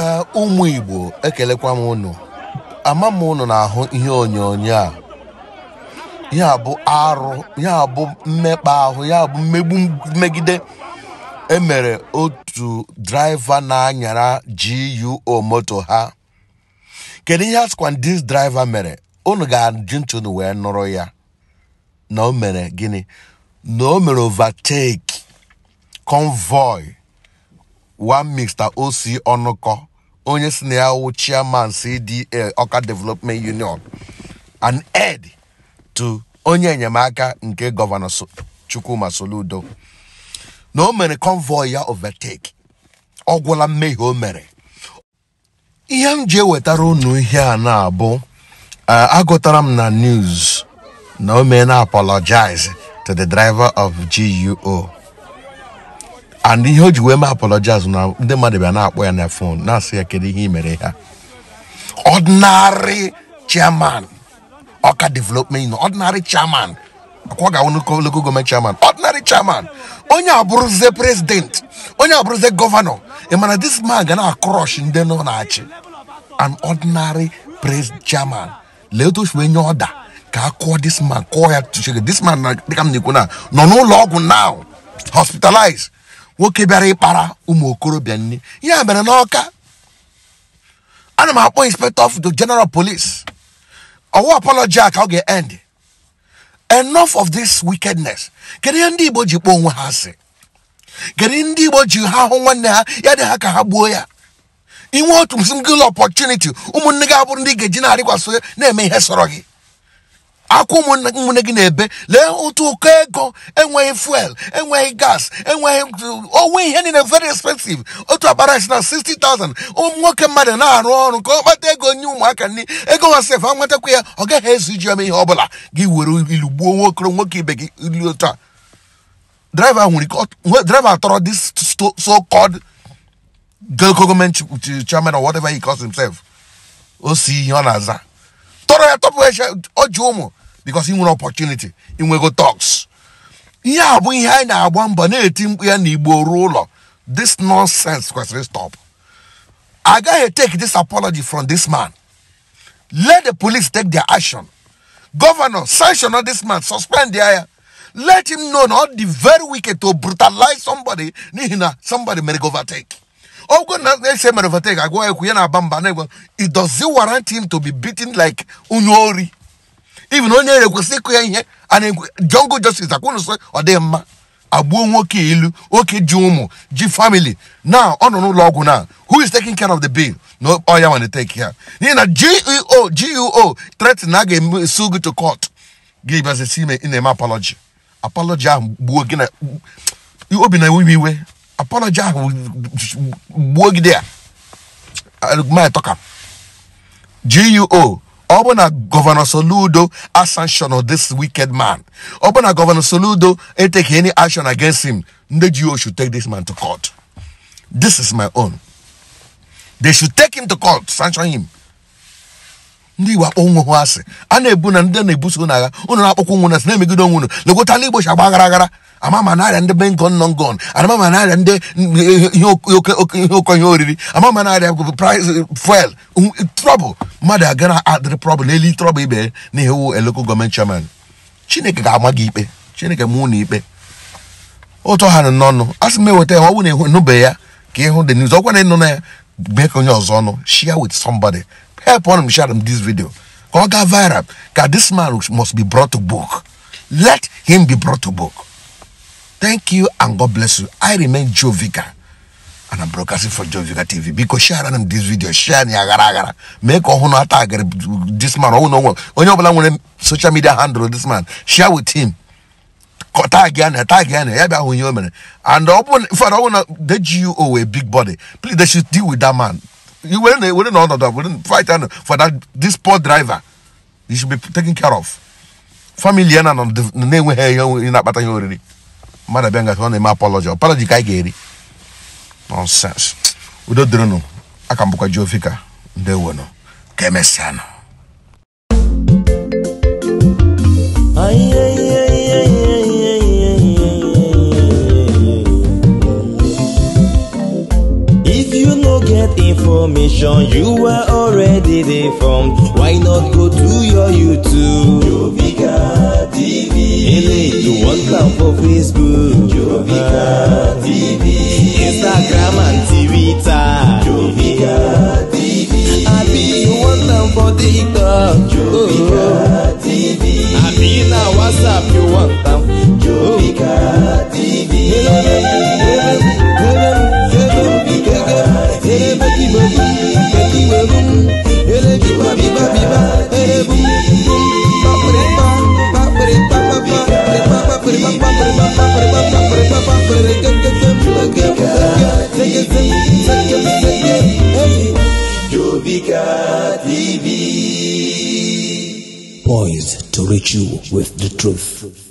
Eh, ụmụ Igbo ekelekwa m unu ama m unu na-ahụ ihe onyonyo a ya bụ arụ ya bụ mmekpa ahụ ya bụ mmegbu megide emere otu draiva na-anyara GUO moto ha kedu ihe asịkwa dis mere unu ga-ajụ ntụnụ wee nụrụ ya na o mere gịnị na o mere overtake convoy one mixta osi ọnụkọ onye si na ya wụ chairman CDA Ọka Development Union an ed to onye enyemaka nke gọvanọ Chukwuma Soludo na o mere convoy ya overtake ọ gwụla mmehie o mere ihe m ji ewetara unu ihe a na-abụ eh, agụtara m na news na o mee na apologize to the driver of GUO and ihe o ji wee mee apologize na ndị mmadụ bịa na-akpọ ya na fon na-asị ya kedu ihe i mere ha ordinary chairman ọka development ordinary chairman akwa ga-awụ local government chairman ordinary chairman onye abụrụzie president onye abụrụzie gọvanọ ị mana this man ga na-akrosh ndị nọ na-achị an ordinary pres chairman lee otu ofu onye ọda ka a kụọ this man kụọ ya tuchege this man dịka m na-ekwu na nọ n'ụlọ ọgwụ now hospitalized nwoke bịara ịkpara ụmụ okorobịa nne ya mere n'ọka ana m akpọ inspector of the general police ọwụ apology ka ọ ga-end enough of this wickedness kedu ihe ndị igbo ji kpọọ onwe ha asị kedu ndị igbo ji ha hụ nwanne ha ya dị ha ka ha gbuo ya inwe otu single opportunity ụmụnne gị abụrụ ndị ga-eji na-arịkwasị na-eme ihe sọrọ gị akwụ ụmụnne gị na-ebe lee ụtụ ụkọ ego enweghị fuel enweghị gas enweghị uh, onwe ihe niile very expensive otu akpara si na 60,000 ụmụ nwoke mmadụ na-arụ ọrụ ka ọ kpata ego nye ụmụaka nri ego ha sef nwetakwa ya ọ gaghị ezu iji ome ihe ọ bụla gị were ilu gbuo nwoke nwoke ibe gị ilu otu a nwere driver tọrọ this so kod government chairman or whatever he calls himself o si ihe ọ na-aza tọrọ ya tọpụ eche ọ ji ụmụ because he won't opportunity he talks ihe a bụ ihe anyị na-agba mbo team. We are ya n'igbo ruo this nonsense question stop I gotta take this apology from this man let the police take their action governor sanction on this man suspend the air. let him know not the very wicked to brutalize somebody Nihina somebody mere overtake ogo they say ese mere overtake go ekwu ya na-aba it does warrant him to be beaten like Unori? even onye ere kwesị ịkụ ya ihe a na-jungle justice akwụnụ sị ọ dịghị mma agbuo nwoke ilu oke ji ụmụ ji family na ọ nọ n'ụlọ ọgwụ na who is taking care of the bill na ọ ya nwana take ya n'ihi na geo geo threat na a ga-esu gị to court gị bịazi ime ị na-eme apology apology ahụ gbuo gị na obi na iwe iwe apology ahụ gbuo gị dị ya geo ọbụna gọvanọ soludo ascension of this wicked man ọbụna gọvanọ soludo take any action against him ndị ji should take this man to court this is my own they should take him to court sanction him ndị igbo akpọ nwe hụ asị a na-ebu na ndị na-ebuso na agha ụnụ na-akpọkwa nwe na asị na-emegide onwe unu legota ndị igbo chi agba aghara aghara amama narịa ndị be ngọn nọ ngọn amama narịa ndị ihe oke ihe oriri amama narịa fuel um, trọbụl mmadụ aga adịrị prọbụl n'elu trọbụl ibe na ihe wu eloko gọọmenti chairman chineke ga-ama gị ikpe chineke mụ na ikpe ụtọ ha nọ n'ọnụ a sị m eweta ya ọ bụ na ịnụbeghị ya ka ịhụ dị n'izu ọkwa na ịnụ na ya bee ka onye ọzọ ọnụ share with somebody help one share them this video. Go get viral. Because this man must be brought to book. Let him be brought to book. Thank you and God bless you. I remain Joe Vika. And I'm broadcasting for Joe Vika TV. Because share them this video. Share ni agara agara. Make a hono attack this man. Oh no. When you belong social media handle this man. Share with him. tag ya tag ya na ya bịa hụ ihe o mere and ọ bụ fọrọ the GUO a big body please they should deal with that man iwere na ewere na ọnọdụ were fight anụ uh, for that this poor driver you should be taking care of family ya na na-enweghị ihe onwe na-akpata ihe oriri mmadụ abịa ngafe ọ na-eme apology apology ka anyị ga-eri nonsense udo dịrịnụ aka m bụkwa Joe Vicar ndewonụ ka emesịanụ If you no get information, you are already deformed. Why not go to your YouTube? Jovika TV. Hey, you want love for Facebook? Jovika TV. TV. Jovika TV. Poised to reach you with the truth.